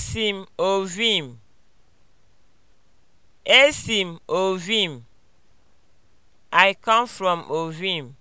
Esi m Ovim. Esi m Ovim. I come from Ovim.